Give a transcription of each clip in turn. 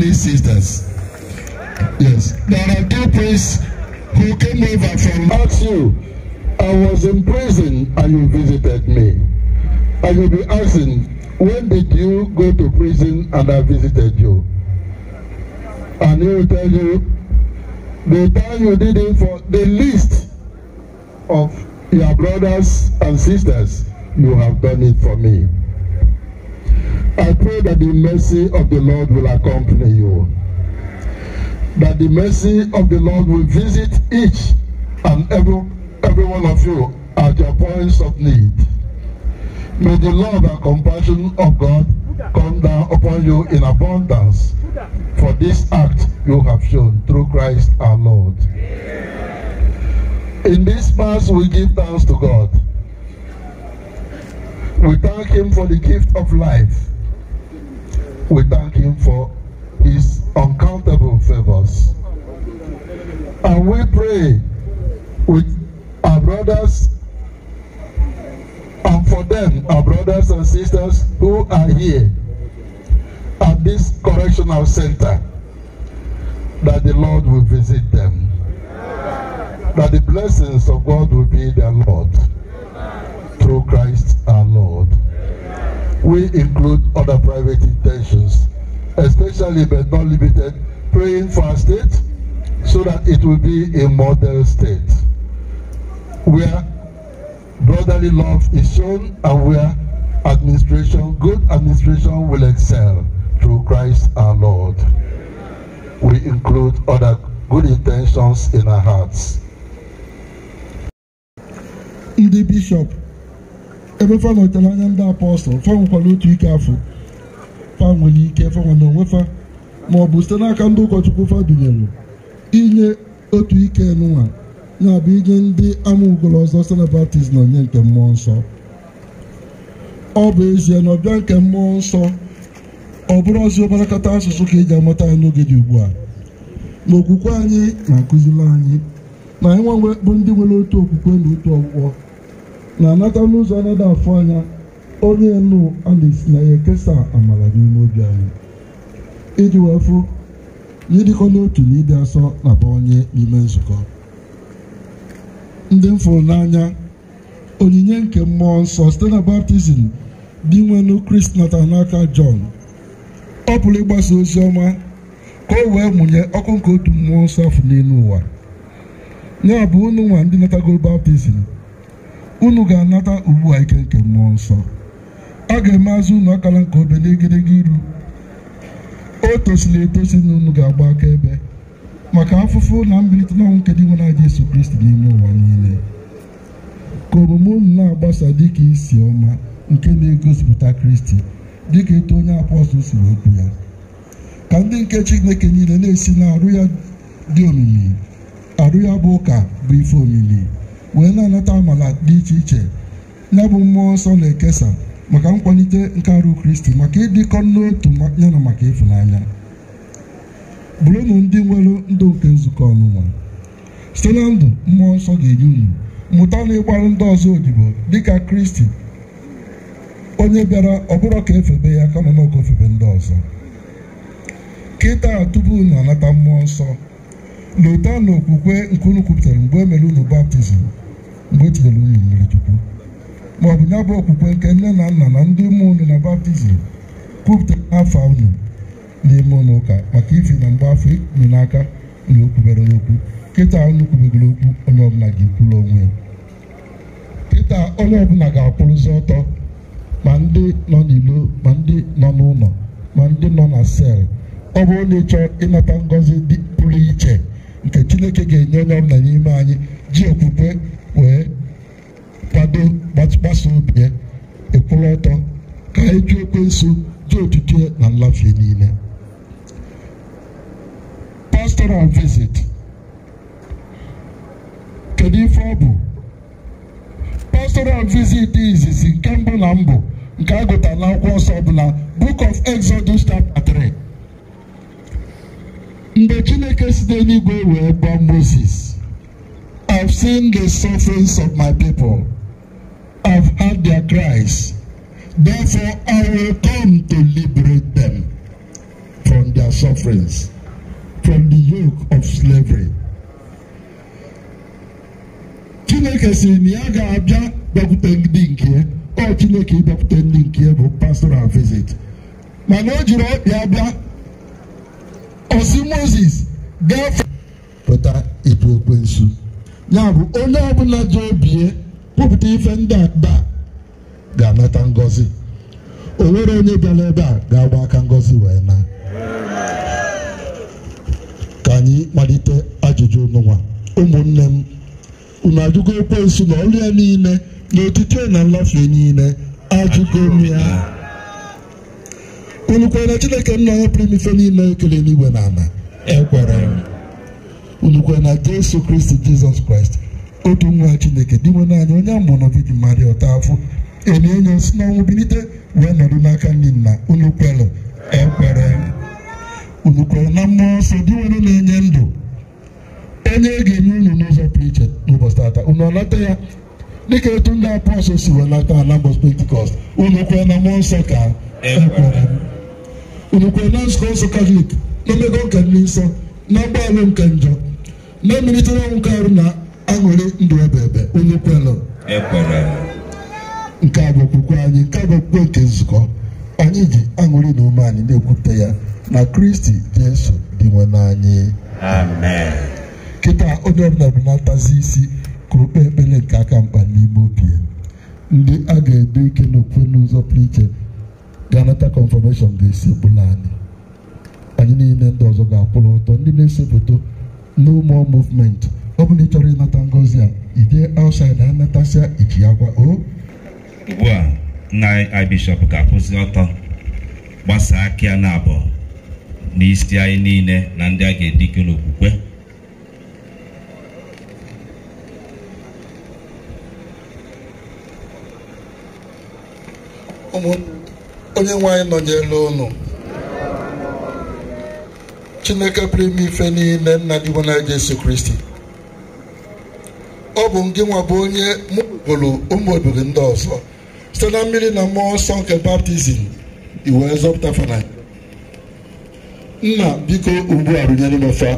many sisters. Yes. There are two priests who came over from. Ask I was in prison and you visited me. I will be asking, when did you go to prison and I visited you? And he will tell you, the time you did it for the least of your brothers and sisters, you have done it for me. I pray that the mercy of the Lord will accompany you. That the mercy of the Lord will visit each and every, every one of you at your points of need. May the love and compassion of God come down upon you in abundance for this act you have shown through Christ our Lord. In this Mass, we give thanks to God. We thank Him for the gift of life. We thank Him for His uncountable favors. And we pray with our brothers and for them, our brothers and sisters who are here at this correctional center, that the Lord will visit them, that the blessings of God will be their Lord through Christ our Lord. we include other private intentions, especially but not limited, praying for our state so that it will be a model state where brotherly love is shown and where administration, good administration will excel through Christ our Lord. We include other good intentions in our hearts. The Bishop ebe fa nọtere anya ndị apọstụl fa nwekwara otu ike afọ fa nwere ike fanwe na onwe fa ma ọ bụ site n'aka ndị ụkọchukwu fa dunyere inye otu ike nwa ya bụ inye ndị ama ugolo ọzọ site na baptizim onye nke mmụọ nsọ ọ bụ ezie na ọbịa nke mmụọ nsọ ọ bụrụ ọzi obarakata asụsụ ka eji amata anyị n'oge dị ugbu a na okwukwe anyị na-akụziri anyị na anyị nwa bụ ndị nwere otu okwukwe na otu ọgwụgwọ na-anata n'ụzọ na-ada afụ anya onye elu a na-esi na ya ekesa amara n'ime obi anyị iji wee fụ na ịdịkọ n'otu na ịdị asọ na bụ onye n'ime nzukọ ndị m fụrụ n'anya onyinye nke mmụọ nsọ site na baptizim dị nwenu krist nata n'aka jọn ọ pụrụ ịgbasa ozi ọma ka o wee mụnye ọkụ nke otu mmụọ nsọ afọ n'elu ụwa ya bụ unu nwa ndị natagoro baptizim unu ga-anata ugbu a ike nke mmụọ nsọ a ga-eme azụ unu akala nke obe n'egedege iru o tosiri etosi na unu ga-agba akaebe maka afụfụ na mbilite n'ọnwụ nke dị nwere aja eso Kristi n'ime ụwa niile ka omume unu na-agbasa dịka isi ọma nke na-egosipụta Kristi dịka eto onye apọstụl siri okwu ya ka ndị nke Chineke niile na-esi na arụ ya dị omimi arụ ya bụ ụka bụ ife omimi wee na-anata amala dị iche iche ya bụ mmụọ nsọ na-ekesa maka nkwalite nke arụ kristi maka ịdịkọ n'otu ya na maka ịfụnanya bụrụnụ ndị nwere ndụ nke nzukọ ọnụnwa site na ndụ mmụọ nsọ ga-enye unu mụta na ịgbarụ ndị ọzọ odibo dịka kristi onye bịara bụrụ ka efebe ya kama na oge ndị ọzọ kịta tupu na anata mmụọ nsọ n'ụtọ na okwukwe nke unu kwupụtara mgbe o e mere unu baptizim mgbe o unu mmiri chukwu ma ọ bụ ya bụ okwukwe nke nne na nna na ndị ụmụ unu na baptizim kwupụtara afọ unu n'ime ụlọ ụka maka ifi na mgbe afọ n'aka na okwubere okwu kịta unu kwubegoro okwu onye ọbụla ga-ekwuru onwe ya kịta onye ọbụla ga-akwụrụzi ọtọ ma ndị nọ n'ilo ma ndị nọ n'ụlọ ma ndị nọ na sel ọ bụrụ na ịchọọ ịnata ngọzi dị pụrụ iche nke chineke ga-enye onye ọbụla n'ime anyị ji okwukwe wee kwado gbasa obi ya ọtọ ka anyị jụ nso ji otutu na nlafe niile pastoral visit kedu ife ọ bụ pastoral visit izizi nke mbụ na mbụ nke a gụtara n'akwụkwọ nsọ ọbụla book of Exodus chapter 3 mgbe chineke site n'igwe wee gwa moses i've seen the sufferings of my people i've heard their cries therefore i will come to liberate them from their sufferings from the yoke of slavery chineke si na ya ga-abịa bịakwute ndị nke ọ chineke ịbịakwute ndị nke bụ pastoral visit mana o jiri ọkpịa bịa osi moses gafee pụta ịtụ nsu ya bụ onye ọbụla jee obie kwupụta ife ndị aba ga-anata ngọzi o nwere onye bịara ebe a ga-agba aka ngọzi wee na ka anyị malite ajụjụ ụnụnwa ụmụnne m unu ajụgo nsu na ọrụ ya niile na otito na nlafe niile ajụgo m ya unukwe na chineke nna ya pụrụ ife niile ekele n'igwe na ala ekwere unukwe na jesu kristi jizọs kraịst otu nwa chineke dị nwe naanị onye amụrụ viji mmadụ ụtọ afọ enye enye si n'ọnwụ bilite wee nọdụ n'aka ndị nna unu kwere ekwere unu kwere na mmụọ nsọ dị nwere na-enye ndụ onye e ga-enye unu n'ụzọ pụrụ iche n'ụbọchị tata unu ọlata ya dịka etu ndị apọstọl si welata ala mbọchị pentikọst unu kwere na mmụọ nsọ ka ekwere urukwe na nzukọ nsọ katọlik n'omego nke ndị nsọ na mgbanwe nke njọ na emelitere ọnwụ ka arụ na aṅụrị ndụ ebe ebe onye kwelụ nke a bụ okwukwe anyị nke a bụ okwukwe nke nzukọ anyị ji aṅụrị na ume anyị na-ekwupụta ya na kristi jesu dị nwe n'anyị kịta onye ọbụla bụ na-atazi isi ka o kpee ekpere nke aka mkpa n'ime obi ndị a ga-edo ike n'okwukwe n'ụzọ pụrụ iche ga-anata ga-esepụla anyị anyị niile ndị ọzọ ga-akwụrụ ọtọ ndị na-esepụta no more movement ọ bụla ị chọrọ ịnata ngozi a ide outside anatasịa iji ya gwa o ugbu a nna bishọp ga-akwụsị ọtọ gbasaa aka a na abụọ n'isi anyị niile na ndị a ga-edike n'okwukwe ụmụnne onye nwe anyị nọnyere ụnụ chineke pụrụ ime ife niile nna dị bụ na Jesu Kristi ọ bụ gị nwa bụ onye mụpụrụ ụmụ obodo ndị ọzọ site na mmiri na mmụọ nsọ nke baptizim iwe zọpụta fana nna biko ugbu a rụnyere mefa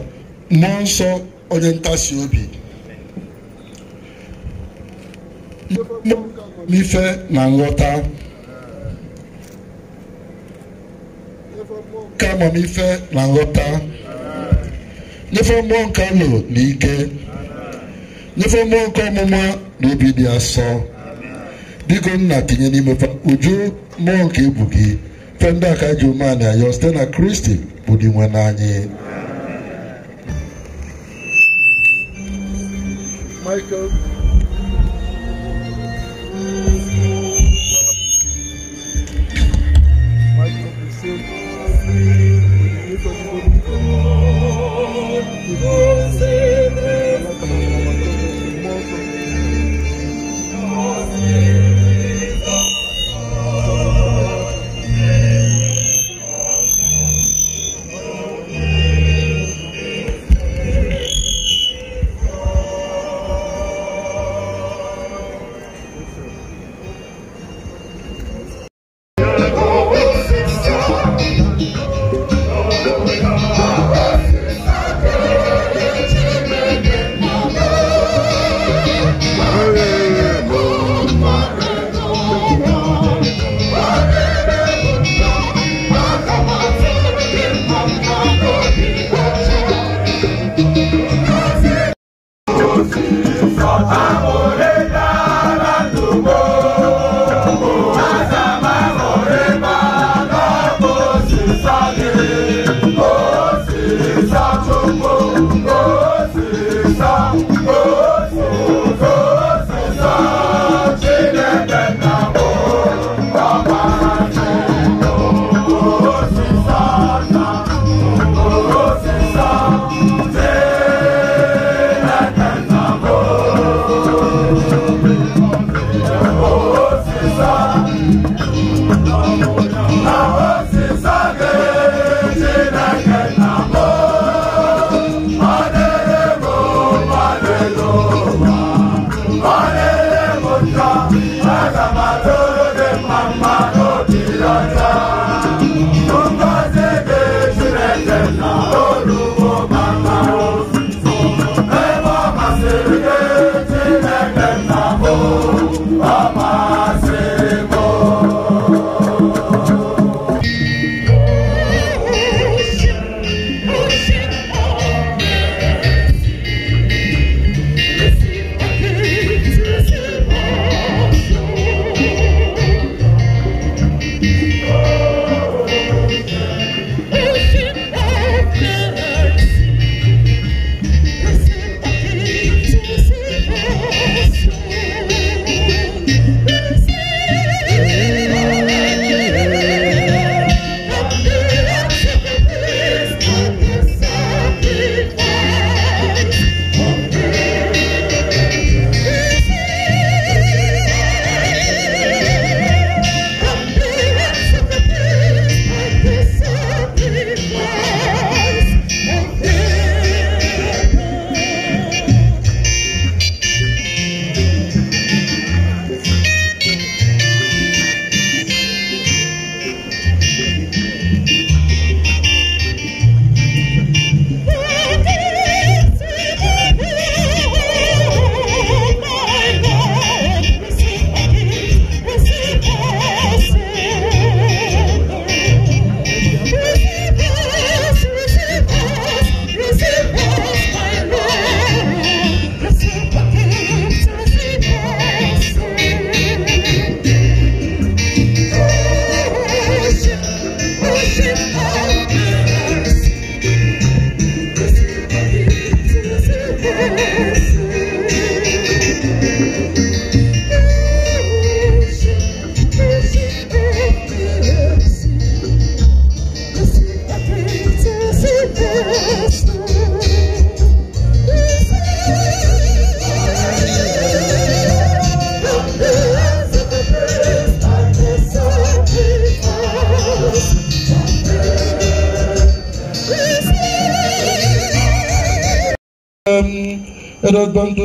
mmụọ nsọ onye ntasi obi ife na nghọta ka amamife na nghọta nyefe mmụọ nke nụ na ike nyefe mmụọ nke ọmụma na obi dị asọ biko nna tinye n'ime uju mmụọ nke ebu gị fe ndị aka ji umeanị ayọ site na kristi bụ dị nwe n'anyị Michael.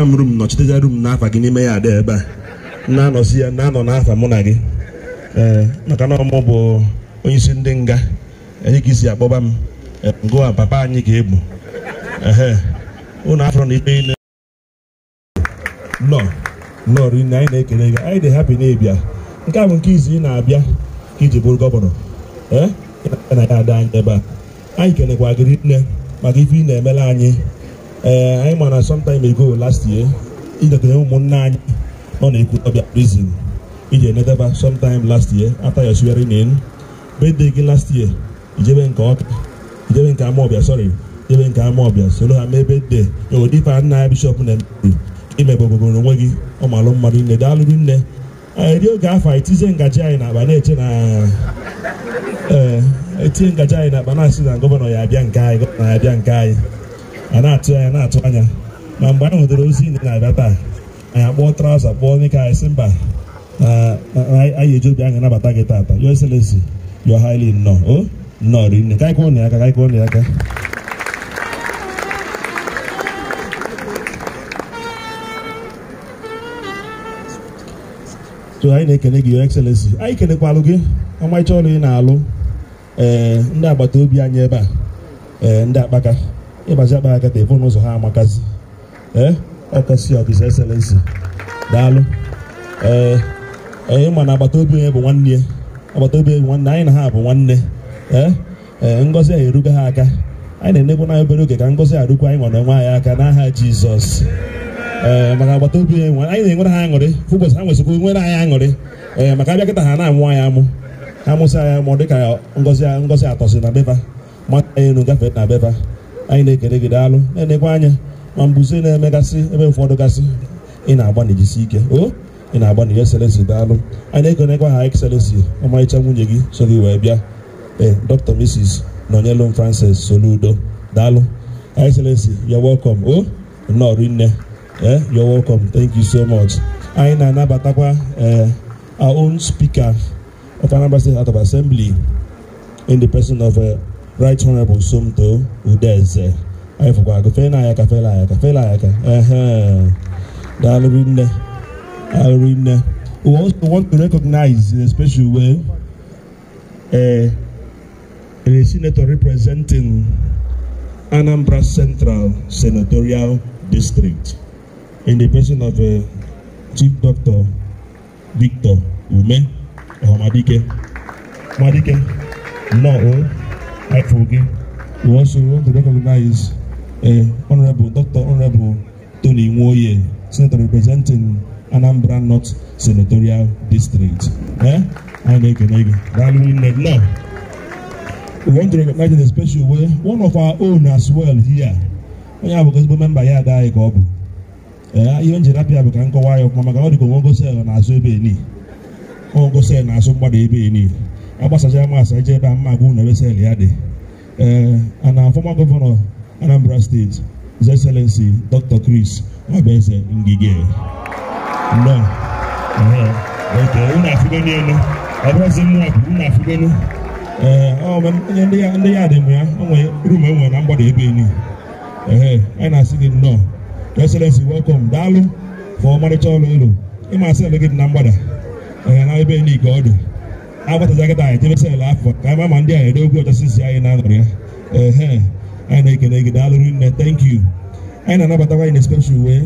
m rum nọchiteza rum n'afa gị n'ime ya adị ebe a na-anọzi ya na-anọ n'afa mụ na gị ee maka na ọmụ bụ onye isi ndị nga enye ka isi akpọba m ngụwa papa anyị ga-egbu ee ụnụ afọ na ikpe ile nọ nọ rinne anyị na-ekele gị anyị dị hapi na-ebia nke a bụ nke izu ị na-abịa ka iji bụrụ gọvanọ ee na ya ada anyị ebe a anyị kelekwa gị nne maka ife ị na-emela anyị ee eh, anyị ma na sometime ago last year idetere ụmụnne anyị nọ na ekwu Ekwutọbịa prison iji enetaba sometime last year after your swearing in birthday gị last year ijebe nke ọka ijebe nke Amawbia sorry ijebe nke Amawbia soro ha mee birthday odifa e nna ya bishọp na emeru imebogogoro onwe gị ọmalụ mmadụ nne daalụrụ nne eri eh, oge afọ etizie ngaji anyị n'akpa na-eche na ee eh, etinye ngaji anyị n'akpa na-asị na gọvanọ ya abịa nke anyị gọvanọ ya abịa nke anyị a na-atụ anya na-atụ anya ma mgbe anyị nwetara ozi ndị na-abịa taa anyị akpọọ traụza kpọọ onye ka anyị sị mba anyị eji obi anyị anabata gị taata your excellency you are highly nnọọ nnọọ rinne ka anyị kụọ na aka ka anyị kụọ na aka so anyị na-ekene gị your excellency anyị kenekwalụ gị ọmarịcha ọrụ ị na-alụ eh, ndị agbata obi anyị ebe a eh, ndị akpaka ịbaji akpa aka telefon n'ụzọ ha amakasị ee ọkasị ọkịsa eselensi daalụ ee onye ma na agbata obi onye bụ nwanne ya agbata obi onye nwanne anyị na ha bụ nwanne ee ee ngọzi anyị eruga ha aka anyị na-enegbu na obere oge ka ngọzi arụkwa anyị nwere onwe anyị aka n'aha jizọs ee maka agbata obi anyị na-enwere ha aṅụrị ụbọchị ha nwesịkwa nwere anyị aṅụrị ee maka abịa kịta ha na-amụ anyị amụ ha mụsị anyị amụ dịka ngọzi atọsi na beba mata anyị elu gafee na beba anyị na-ekele gị daalụ na-enekwa anya ma mbuze na-emegasị ebe ụfọdụ gasị ị na-agba na ike o ị na-agba na excellency daalụ anyị na-ekenekwa ha excellency ọmarịcha nwunye gị so gị wee bịa ee dr mrs nọnyelum francis soludo daalụ excellency yo welcome o nnọọ rinne eh you're welcome thank you so much anyị na-anabatakwa e, our own speaker of Anambra State House of Assembly in the person of e, right honorable somto udeze anyị fụkwa agụ fela anyị aka fela anyị aka fela anyị uh-huh. A daalụrị nne daalụrị nne we also want to recognize in a special way uh, a senator representing Anambra Central Senatorial District in the person of uh, Chief Doctor Victor Ume Omadike. Madike, no. helpful again. We also want to recognize uh, Honorable Dr. Honorable Tony Nwoye, Senator representing Anambra North Senatorial District. Eh? We want to recognize in a special way one of our own as well here. Onye abụ ezigbo memba ya adaghị ka ọ bụ ihe njiri apịa bụ ka nkọwa ya ọkwa maka ọ dị onwe ngosi na-azụ ebe eni onwe ngosi na-azụ mgbada ebe eni ọ gbasachara m asa ije ebe a mma agwụ na ebeseli ya dị ee ana fọma gọvanọ Anambra steeti His Excellency Dr. Chris Obeze Ngige nnọọ elu ọ eh, ndị ya dị m ya onwe rum enwe na mgbada ebe eni anyị na-asị gị nnọọ Excellency welcome daalụ fọ ọmarịcha ọrụ elu ịma asị ele gị dị na mgbada ee na ebe eni ka ọ dị abatazaga anyị tebesala afọ you. ama ma ndị a ere egwu ọchasisi anyị na-anọrọ ya ehe anyị na-ekene gị daalụrụ nne thank you anyị na-anabatakwa anyị na special way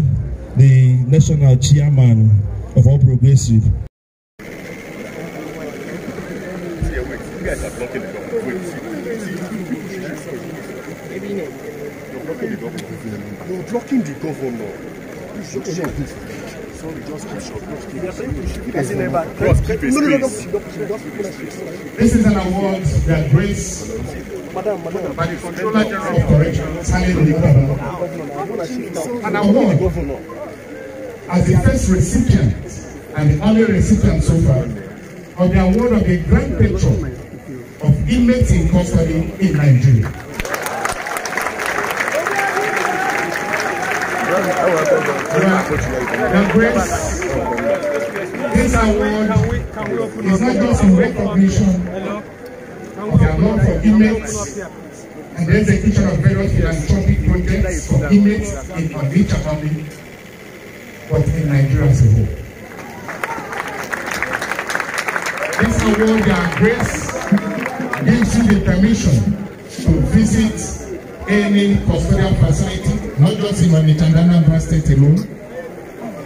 the national chairman of all progressive You're blocking the governor. You should sorry, just Just keep short. Just keep This is an award that brings the Controller of Corrections, an award as the first recipient and the only recipient so far of the award of the Grand Patron of Inmates in Custody in Nigeria. The this award is not just a recognition of the award for inmates and the execution of various philanthropic projects for inmates in Abuja family, but in Nigeria as a whole. This award, their grace, gives you the permission to visit any custodial facility not just in Mamitandana Bra State alone,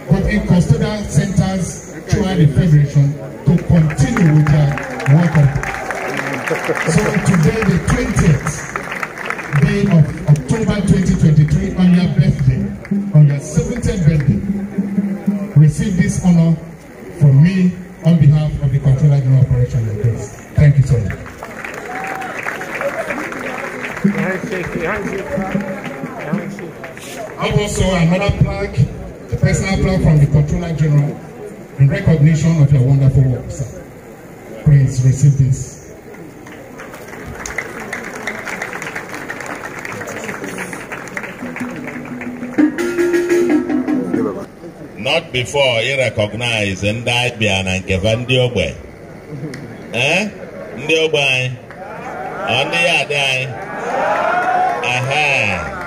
but in custodial centers throughout the Federation to continue with their work. so today, the 20th day of October 2023, on your birthday, on your 70th birthday, receive this honor from me on behalf of the Controller General Operation and Grace. Thank you so much. have also another plaque, a personal plaque from the Controller General in recognition of your wonderful work, sir. Please receive this. Not before he recognized and died by an ndị ogbe. Eh? Ndị ogbe anyị? the ndị ya adị Aha!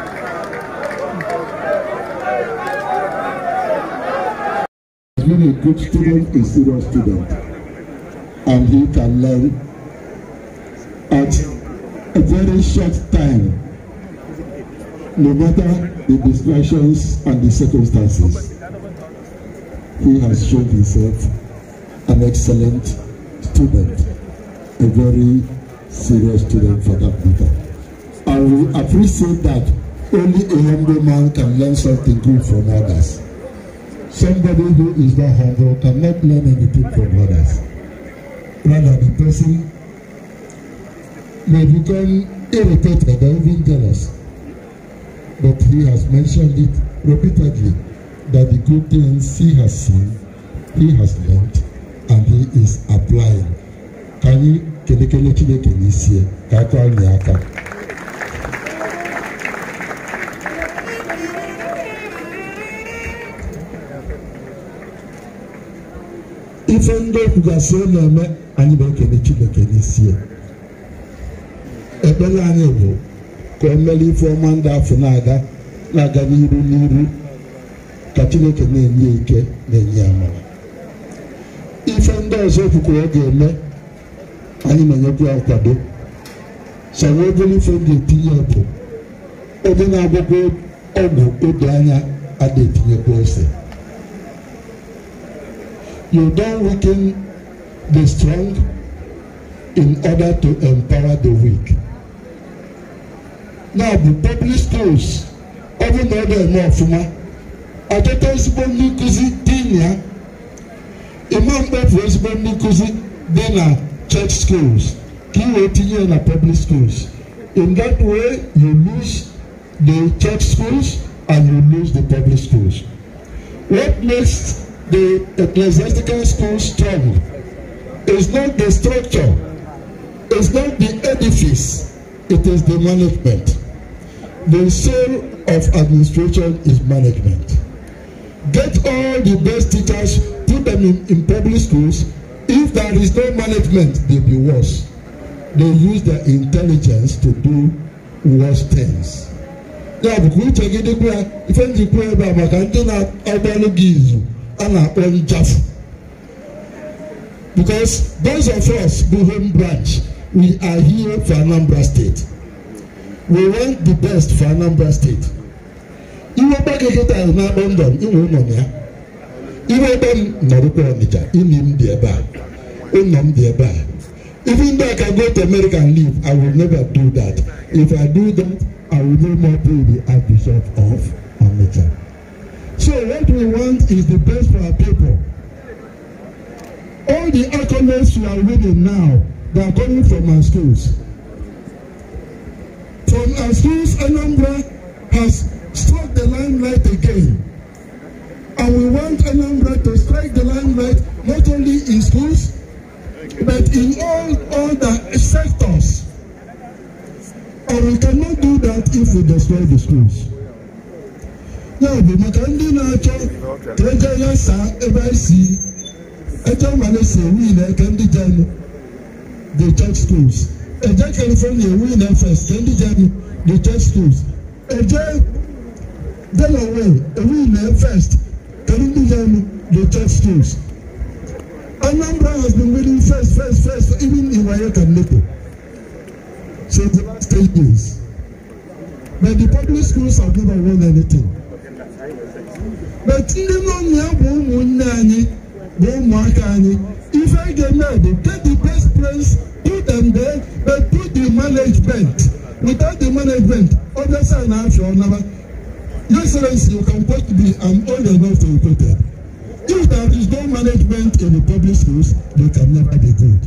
being a good student a serious student and he can learn at a very short time no matter the distractions and the circumstances he has shown himself an excellent student a very serious student for that matter and we appreciate that only a humble man can learn something good from others Somebody who is not humble cannot learn anything from others. Rather, the person may become irritated or even jealous. But he has mentioned it repeatedly that the good things he has seen, he has learned, and he is applying. Can you kelekele Chineke n'isi ka aka ọnyị aka? ife ndị okwugasị na-eme anyị na-ekene Chineke n'isi ya ekpere anyị bụ ka o mere ife ọma ndị afọ na-aga na-aga n'iru n'iru ka Chineke na-enye ike na-enye amara ife ndị ọzọ okwukwe ọ ga-eme anyị na-enyekwa ya nkwado so na obere ife m ga-etinye bụ onye na-agwakwa ọgwụ oge anya a na-etinyekwa ose you don't weaken the strong in order to empower the weak. Now the public schools even na ọ dị eme ọfụma ọtụtụ ezigbo ndị nkụzi dị na ya ịma mkpefu ezigbo ndị nkụzi church schools ka ị wee tinye na public schools in that way you lose the church schools and you lose the public schools. What next? the ecclesiastical school strong is not the structure, is not the edifice, it is the management. The soul of administration is management. Get all the best teachers, put them in, in public schools. If there is no management, they'll be worse. They use their intelligence to do worse things. Ya uche gị ife njikwa ebe a ndị na-agbalụ gị izu a na-akpọ ijafu because those of us bụ home branch we are here for Anambra State we want the best for Anambra State iwe gbagị kịta na-akpọ ndọm inwe ụlọ na ya iwe ebe m nọrụkwa Ọnịcha imi m dị ebe a ụlọ m dị ebe a even though I can go to American League, I will never do that if I do that I will no more be the Archbishop of Ọnịcha So what we want is the best for our people. All the accolades you are reading now, they are coming from our schools. From our schools, Anambra has struck the limelight again. And we want Anambra to strike the limelight not only in schools, but in all other sectors. And we cannot do that if we destroy the schools n'obi maka ndị na-achọ ka ego ya saa ebe anyị si ego mmanụ si ewu ile ka ndị jenụ the church schools eje california ewu ile first ka ndị jenụ the church schools eje delaware ewu ile first ka ndị jenụ the church schools anambra has been winning first first first even in wayeka nnepo since the last three years but the public schools have never won anything beti ndị mmụọ bụ ụmụnne anyị bụ ụmụaka anyị ife ga-eme bụ take the best place put them there but put the management without the management obviously a na-afịa ọnaba excellency you can quote me i'm old enough to be quoted if there is no management in the public schools they can never be good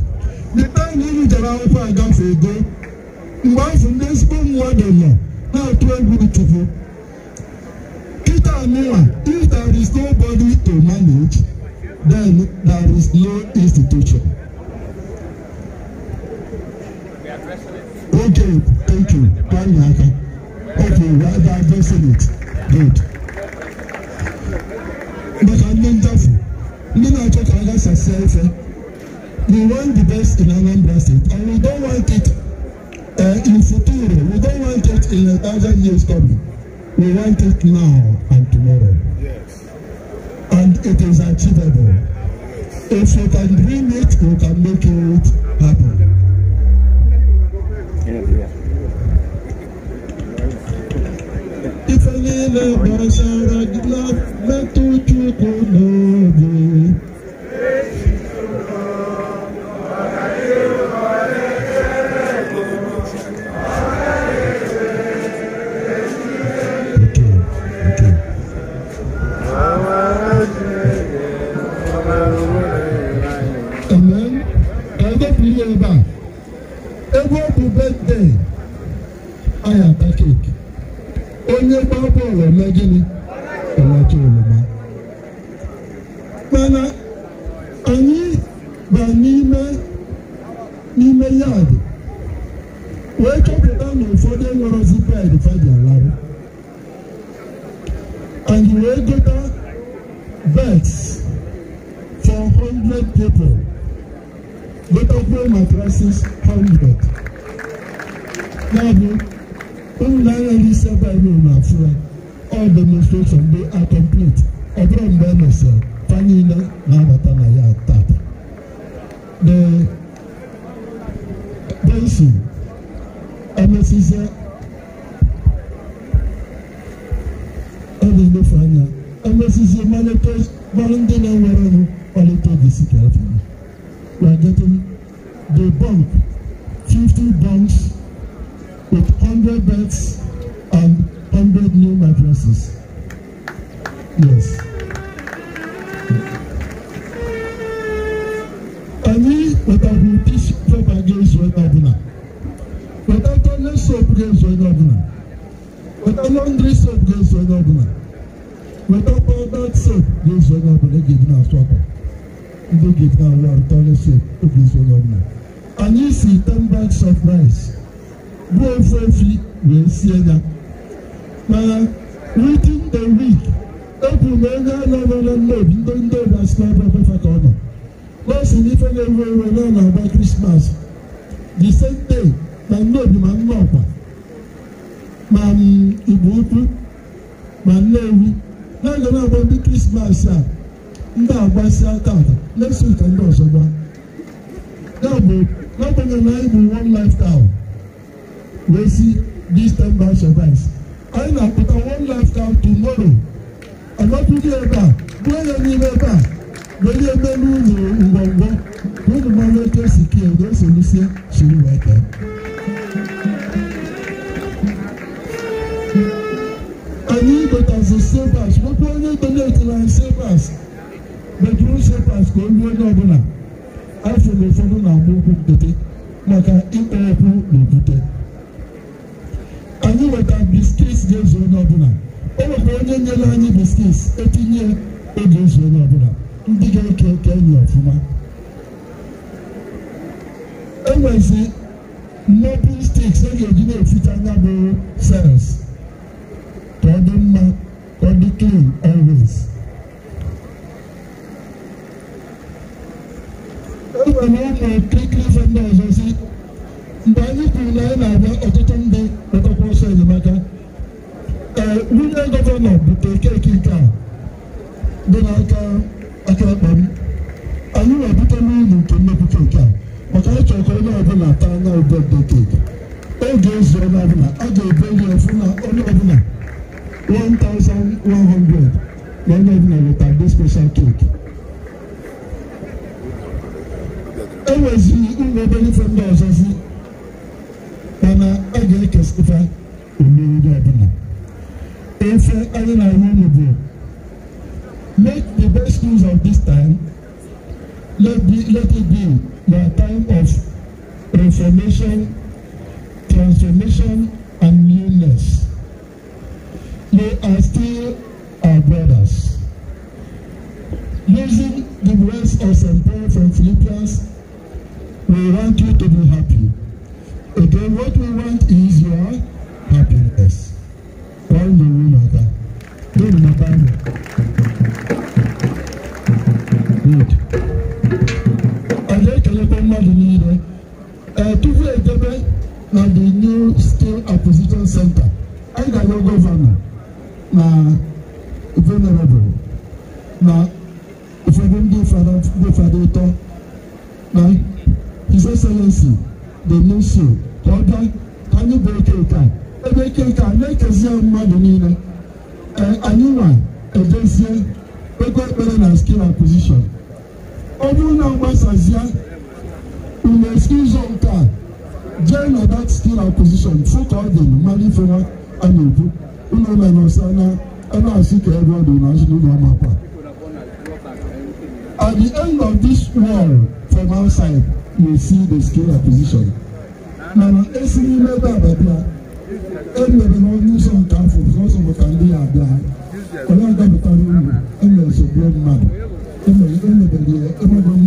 the time unu jere akwụkwọ agafe ego mgbe afọ ndị ezigbo mmadụ nọ na-atụ egwu chukwu Peter Mira, if there is nobody to manage, then there is no institution. Okay, thank you. Thank you. Okay, we are addressing it. Good. But I'm not doubtful. know na talk about success. Eh. We want the best in our State, and we don't want it uh, in future. We don't want it in a thousand years coming. We want it now and tomorrow. Yes. And it is achievable. If you can dream it, you can make it happen. If I a إفني لبشرت لفتت قلوبي ọlá gíní ọlá tó wọlé mọ. mana anyị ba n'ime n'ime yaadị wee chọpụta na ụfọdụ enwerọzi ped faji alarụ anyị wee gota bets for 100 people gotakwuo matrasis 100 ya bụ ụmụ na-enweghị isi ebe anyị na-afụra demonstration, they are this ten bank suffice. anyị na-apụta one lifetime tomorrow anọtụghị ebe a gbuo ya n'ime ebe a wenye melu ụlọ ngwongwo unu mmanụ otu esi kie na esolusie siri wee tee anyị gotazi sevas nwekwa onye donetiri anyị sevas bedrum sevas ka olu onye ọbụla afọ na ụfọdụ na-agba ụkwụ nkịtị maka ịkpọ ọkụ na okwute anyị nweta biskits ga-ezu onye ọbụla o nwekwa onye nyere anyị biskits etinye oge ezu onye ọbụla ndị ga-eke eke enyi ọfụma enwezi entirely agree with you. Make the best use of this time. Let, be, let it be your time of reformation, transformation, and newness. You are still our brothers. Using the words of St. Paul from Philippians es a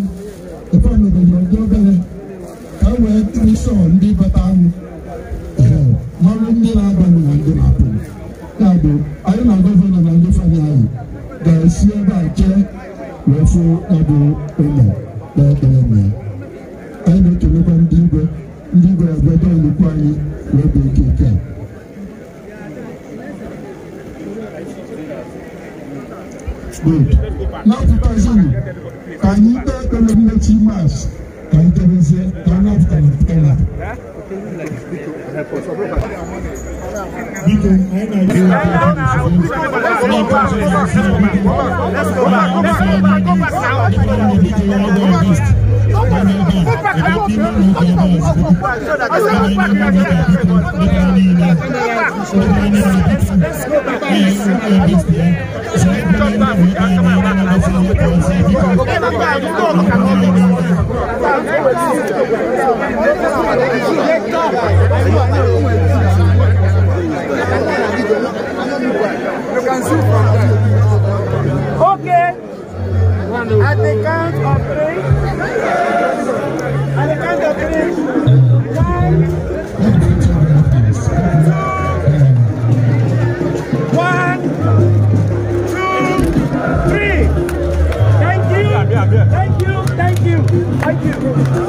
Thank you.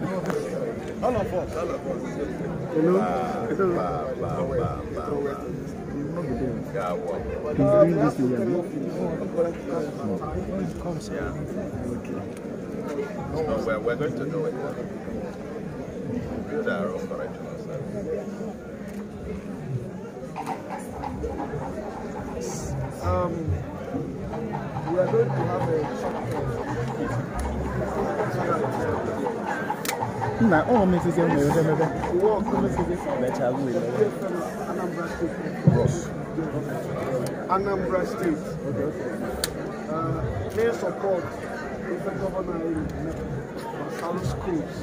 all of us. All of us. You know? we're, going to do it. our own service. Um, we are going to have a na ọ nwere ụdị mebe uwe ọkụ Anambra State Anambra uh, State okay, support ife gọvanọ anyị Masalu Schools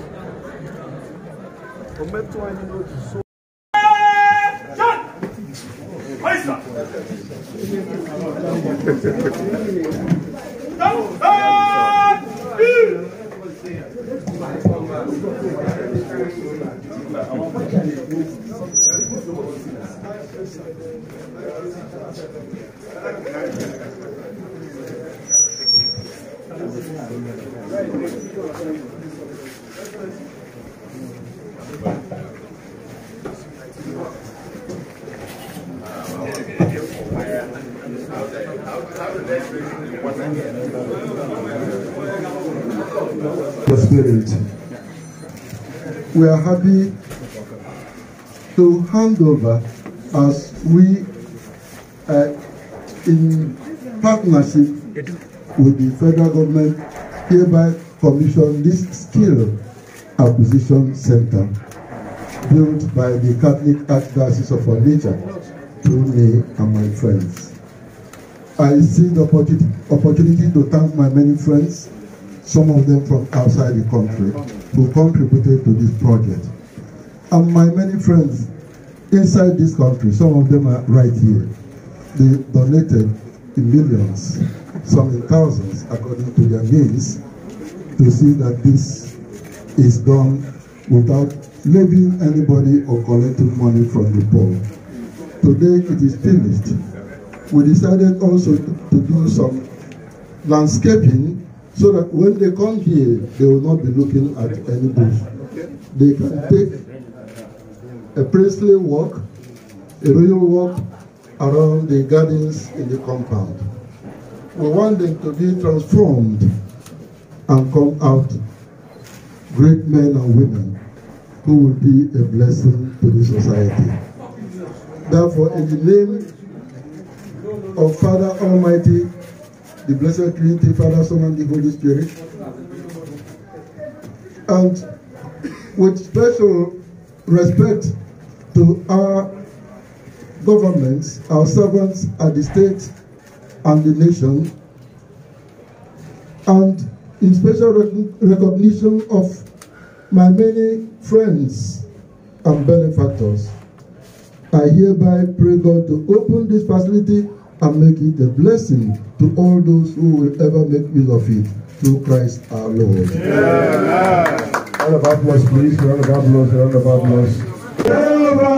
o metụ anyị n'otu so John! Oyster! The Spirit. We are happy to hand over as we uh, in partnership with the federal government, hereby commission this skill acquisition center built by the Catholic Archdiocese of Nature. through me and my friends. I see the opportunity, opportunity to thank my many friends, some of them from outside the country, who contributed to this project. And my many friends inside this country, some of them are right here. They donated in millions, some in thousands, according to their means, to see that this is done without leaving anybody or collecting money from the poor. Today it is finished. We decided also to do some landscaping so that when they come here, they will not be looking at any bush. They can take a princely walk, a royal walk, around the gardens in the compound. We want them to be transformed and come out great men and women who will be a blessing to the society. Therefore, in the name of Father Almighty, the Blessed Trinity, Father, Son, and the Holy Spirit, and with special respect to our governments, our servants at the state and the nation, and in special rec recognition of my many friends and benefactors, I hereby pray God to open this facility and make it a blessing to all those who will ever make use of it through Christ our Lord. Yeah. Round of applause, please. Round of applause. Round of applause.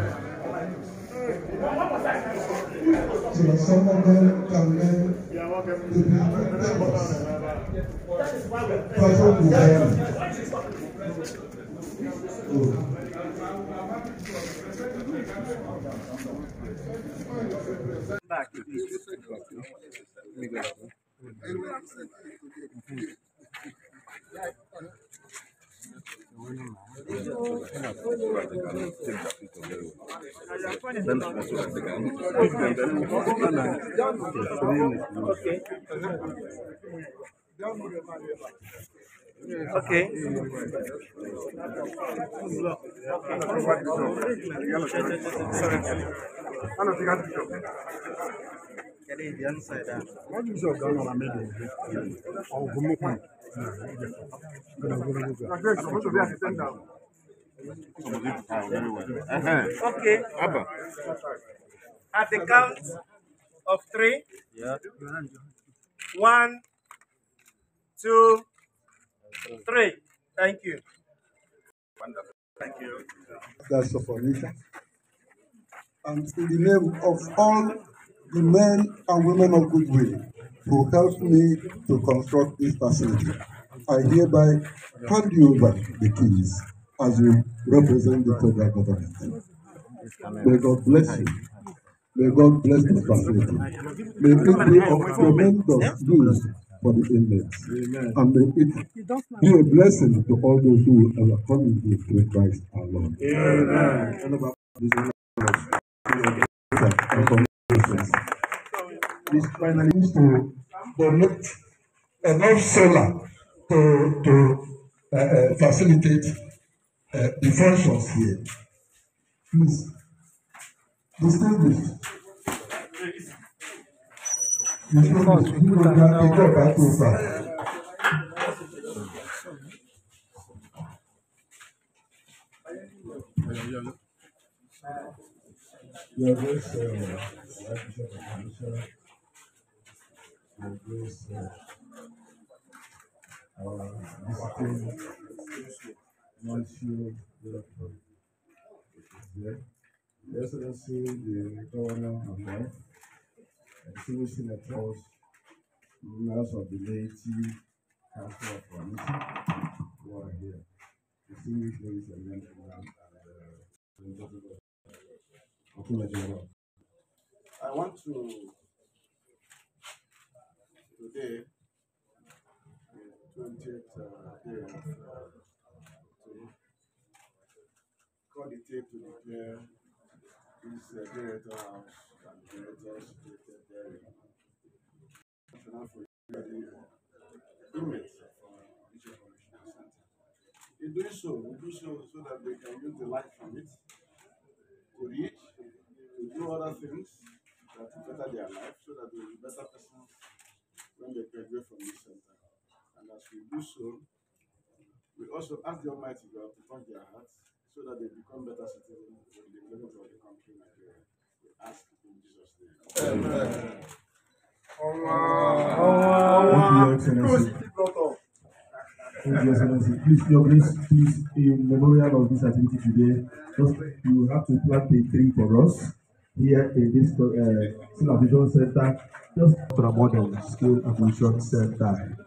consider some of can to be mentors. People who Okay. Okay. Okay. At the count of three. Yeah. One, two, three. Thank you. Wonderful. Thank you. That's the formation. And in the name of all the men and women of goodwill who helped me to construct this facility. I hereby hand you over the keys as you represent the federal government. May God bless you. May God bless the facility. May it be of tremendous use for the inmates. And may it be a blessing to all those who are coming to through Christ our Lord. Amen. finance is finally used to donate enough solar to to uh, uh, facilitate uh, the functions here. Please, distinguish. Distinguish. Nígbà ìjọba tó gbà. Thank you. Your grace, Lord. Your grace, Lord. Our visiting, Monsieur, Lord. Yeah. Your Excellency, the Governor of Life, Extinguishing the Trust, members of the Laity Council of Commission, who are here. Distinguished ladies and gentlemen, and uh, I want to today, the 20th uh, day of uh, to call the tape to declare this uh, director house and director's situated there National for the inmates from Bishop Correctional Center. In doing so, we do so so that they can use the light from it to reach to do other things that will better their life so that they will be better persons when they graduate from this center. And as we do so, we also ask the Almighty God to touch their hearts so that they become better citizens in the development of the country Nigeria. We ask in Jesus' name. Amen. Allah. Thank you, Excellency. Please, Your Grace, please, in memorial of this activity today, just you have to plant a tree for us here in this uh, skill center, just promote the skill acquisition center.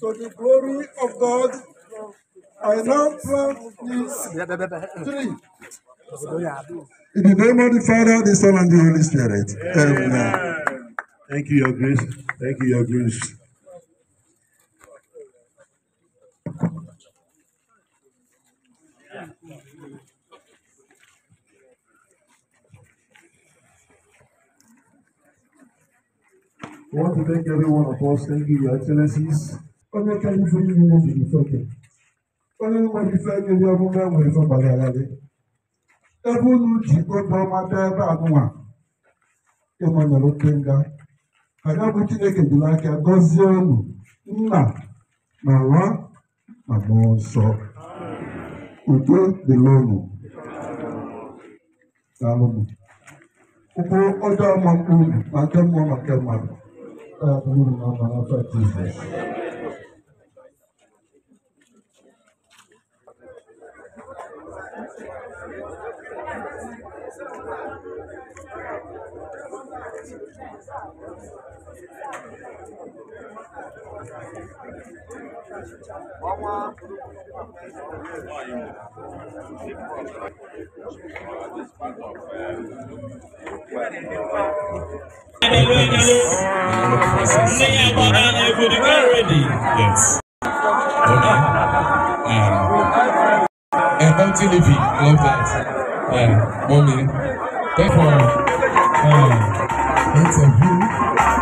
To the glory of God, I now plant this tree. In the name of the Father, the Son, and the Holy Spirit. Amen. Amen. Thank you, Your Grace. Thank you, Your Grace. I want to thank every one of us. Thank you, Your Excellencies. Ọjọ́ kẹ́yìn fún yín ni mo fi ìfọ̀kẹ́. Ọjọ́ ní mo fi fẹ́ ní ọdún mẹ́wàá ìfọ̀kàlẹ̀ àlàyé. Ẹbúnú jì gbogbo ọmọ abẹ́rẹ́ bá àdúrà. Ịma nyere oke nga. Ada bụ Chineke jiri aka gọzie unu nna na nwa na mmụọ nsọ. No, no unu. Daalụ m. Ụkwụ ọjọọ ma mkpu No, nke mmụọ na nke mmadụ. Rabbim Allah'a fatih. Sing about that everybody already. Yes. Okay. Um, and TV, love that. Yeah, mommy. Therefore, uh, interview.